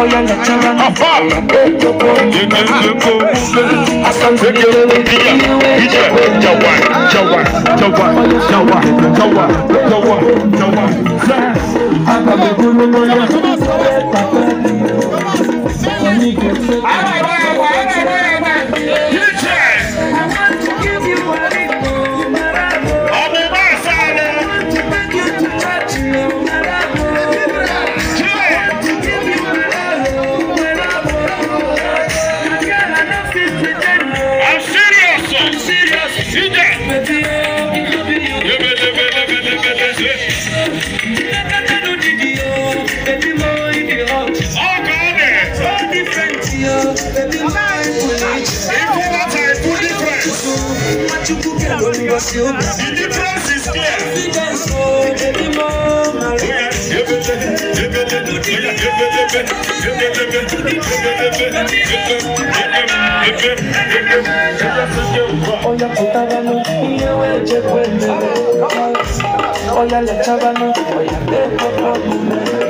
Oh, yeah, let you run. Take your go. I stand with you. DJ, Jawan, Jawan, Jawan, Jawan, Jawan, Jawan, Jawan. The difference is clear. Oya kutabano, iye weje kwende. Oya letabano, oya lepo kabume.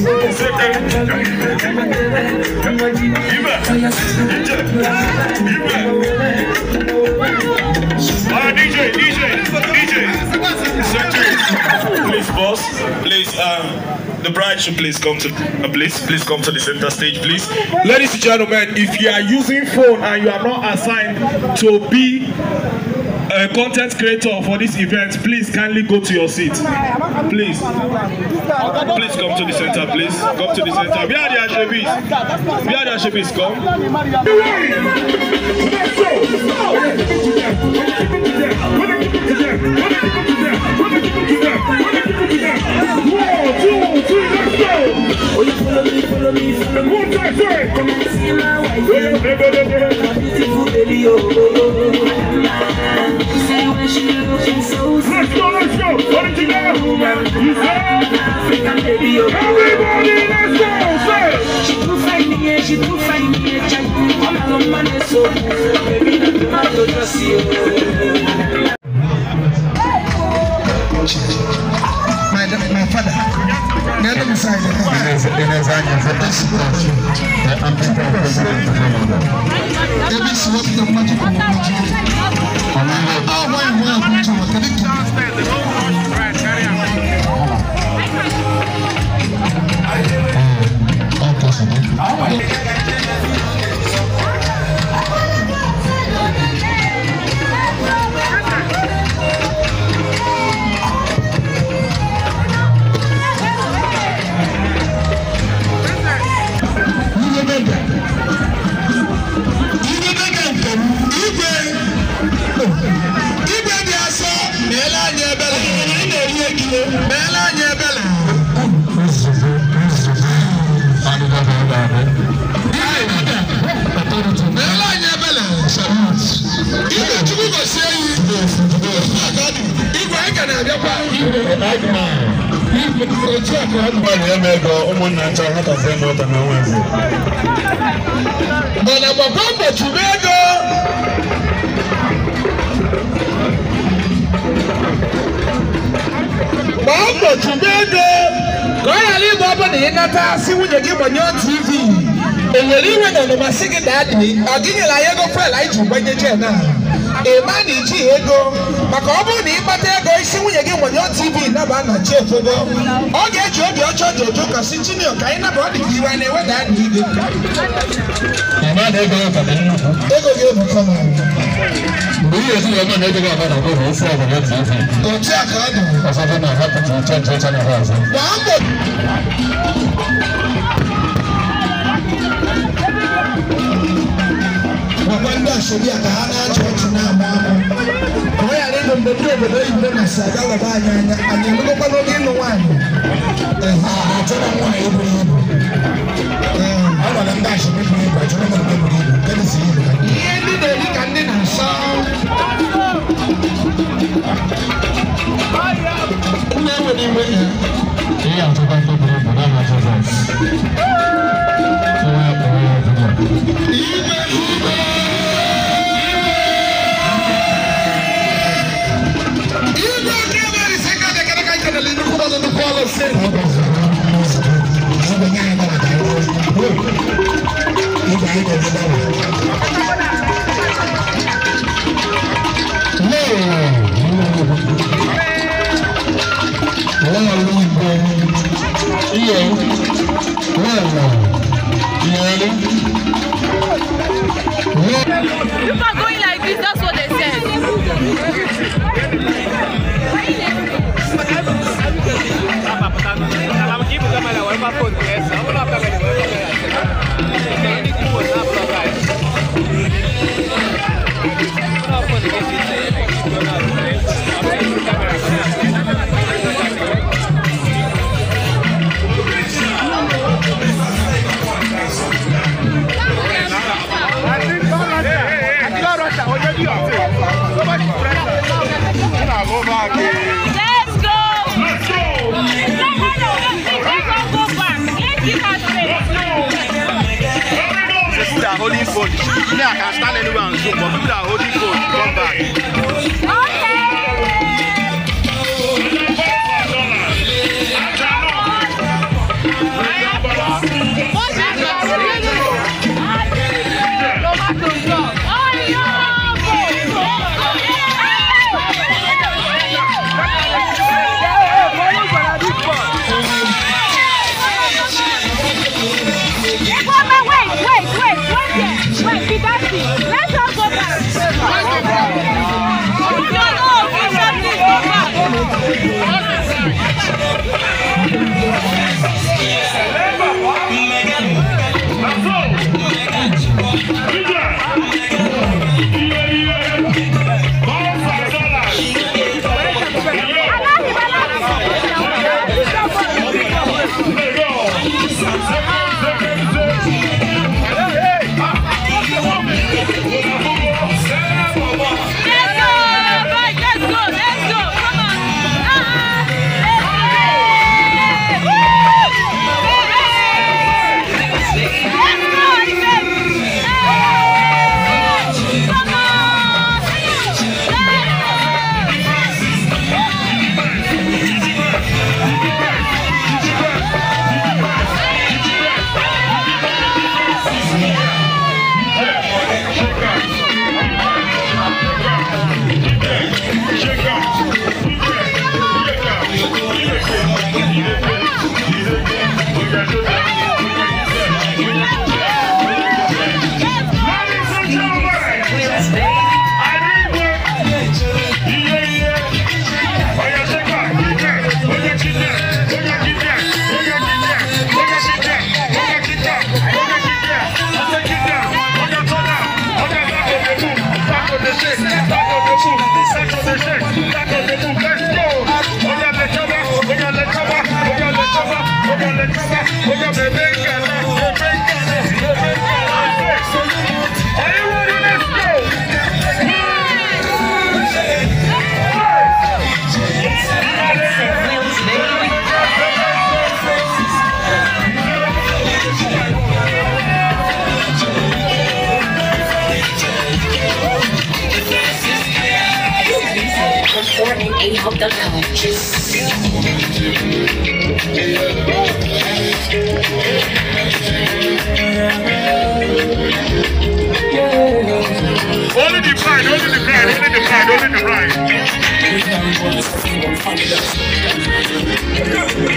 DJ, DJ, DJ. Please, boss. Please, um, the bride should please come to, uh, please, please come to the center stage, please. Ladies and gentlemen, if you are using phone and you are not assigned to be uh, content creator for this event, please kindly go to your seat. Please. Please come to the center, please. Come to the center. We are the Ashebis. We are the Ashebis. Come so baby, not to just you. My, my father, the other side. Davis gbalị eme na ego ọ na ịnata gị gbanyụọ tv na ọnụmasị gị na na ego ọ bụrụ na ịkpata ego isi nwunye ogbonyo tv naba na chi efogo ọ ga-eji obi ọchọ dị ụtọ ka si ka anyị naba ọ dị ka iwe na-eweda anyị ide ego ga-ebuka na mgbe ihe esi ya ọgbọnọ ego ga-abara ọgbọ bụ ofe a ka ọ dị ọsọfọ mbɛbi obodo oyibo na si aga wɔ ba anya anya anya ndo kɔkɔ n'oge ịnụ nwaanyị ɛha atọ na nwaanyị eburu ibu ɛɛ ọ nọ na ndị asọmpi bụ ibu atọ na nwaanyị holding phone. Me, I can stand anywhere and zoom, but people that are holding phone, come back. Yeah.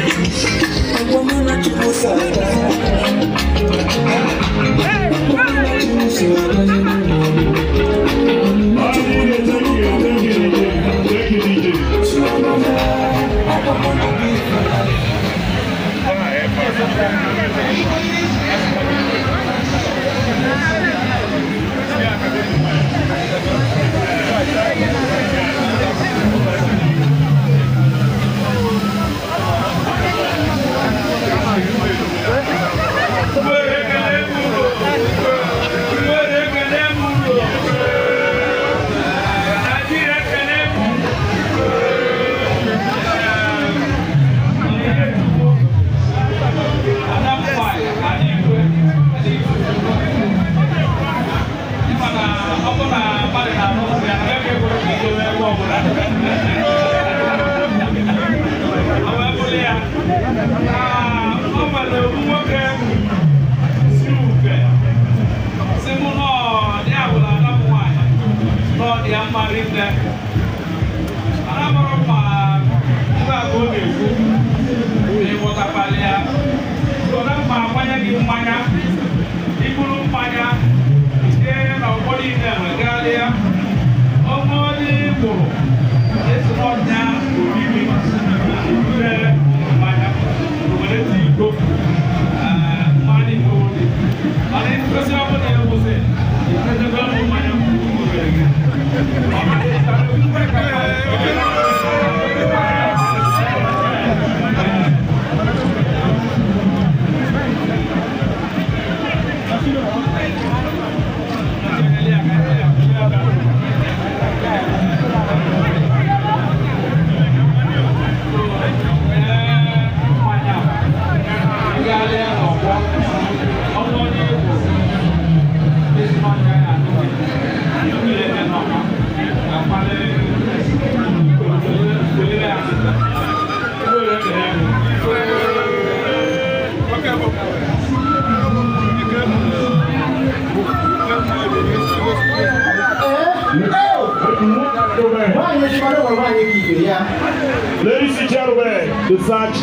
research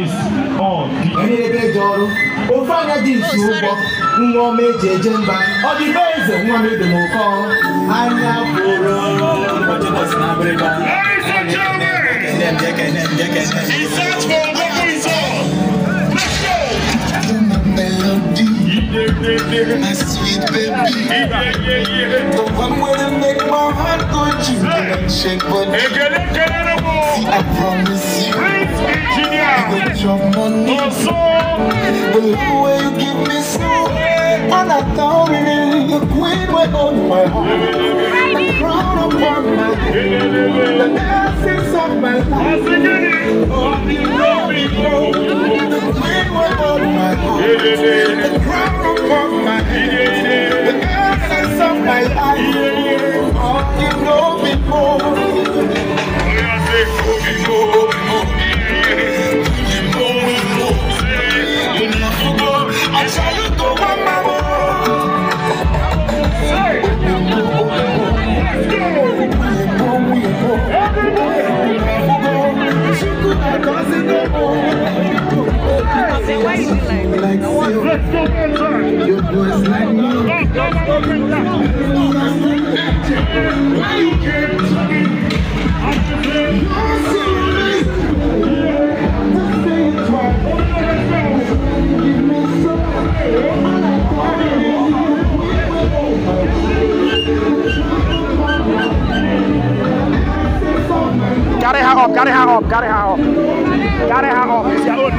is on. N'ebe dị ọrụ, ofe anya dị nsu oh, ụgbọ, nwa ọma eji eje mba, ọ dị be eze nwa e m ebe n'ụkọ anya pụrụ. Ladies and gentlemen, research for a better result. baby, my sweet baby. The one way to make my heart go jump and shake, but see, I promise you, I will drop my oh, The love way you give me so, and I thought it, the queen went on my heart for my The blessings of my life Oh, you know me, oh The rain were on my heart The crown upon my head The essence of my life Oh, you know me, oh I tell you to one Cause Let's go like Why you i You're Give me I like Got it high up, got it high up, got it high up. ra đây hàng hộp sẽ luôn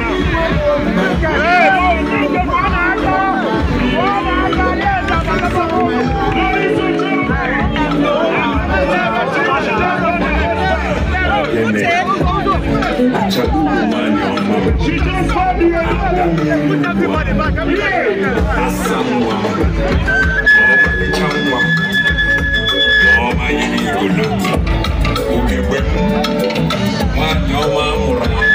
Check the money on my She's on fire, put everybody back up here. That's someone. Oh, my changwa. Oh, my yini gulu. Ubi wep. Man, yo, man, mura.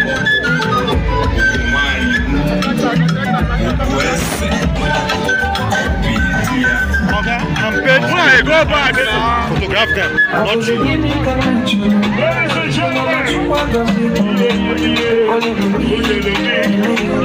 good. Why? Go back. Photograph them. Not you. Ladies and gentlemen.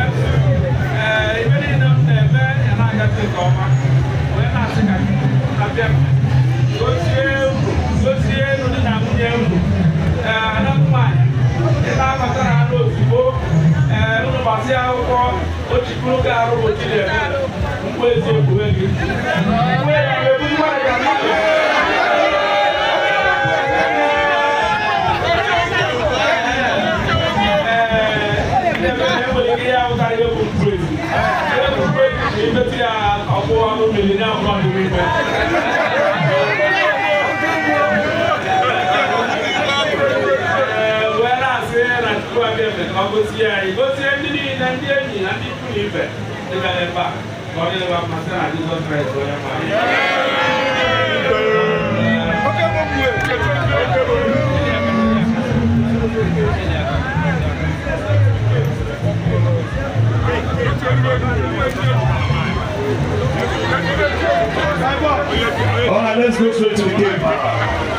nkyɛn ɛɛ ebɛni nam na ɛbɛ ɛna agate ka ɔma wɔyɛ na ase ka abɛm osie osie no ne na nwunye mu ɛɛ anamuma ɛna abata ano ozugbo ɛɛ nnubasi akwụkwọ ochikuru ka arụ otu na nje igosi ndị niile ndị enyi na ndị ikwu na ibe dịbịara ebe a ka ọ dịrịba mma sị na Jizọs Kraịst onye All right, let's go straight to the game.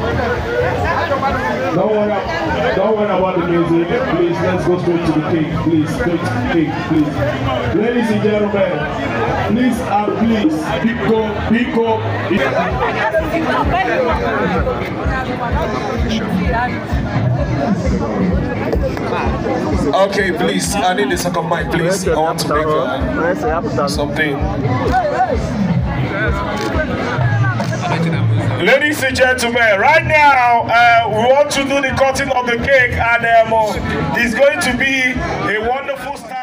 Don't worry, don't worry about the music. Please, let's go straight to the cake. Please, straight to the cake, please. Ladies and gentlemen, please and please, pick up, pick up. Okay, please, I need a second mic, please. I want to make uh, something. Ladies and gentlemen, right now uh, we want to do the cutting of the cake and um, it's going to be a wonderful start.